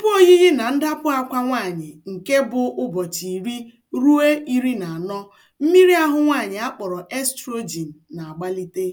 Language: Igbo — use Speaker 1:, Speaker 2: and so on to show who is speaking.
Speaker 1: Tupu oyiyi na ndapụ akwa nwaanyị nke bụ ụbọchị iri ruo iri na anọ, mmiri ahụ nwaanyị akpọrọ estrogen na-agbalite.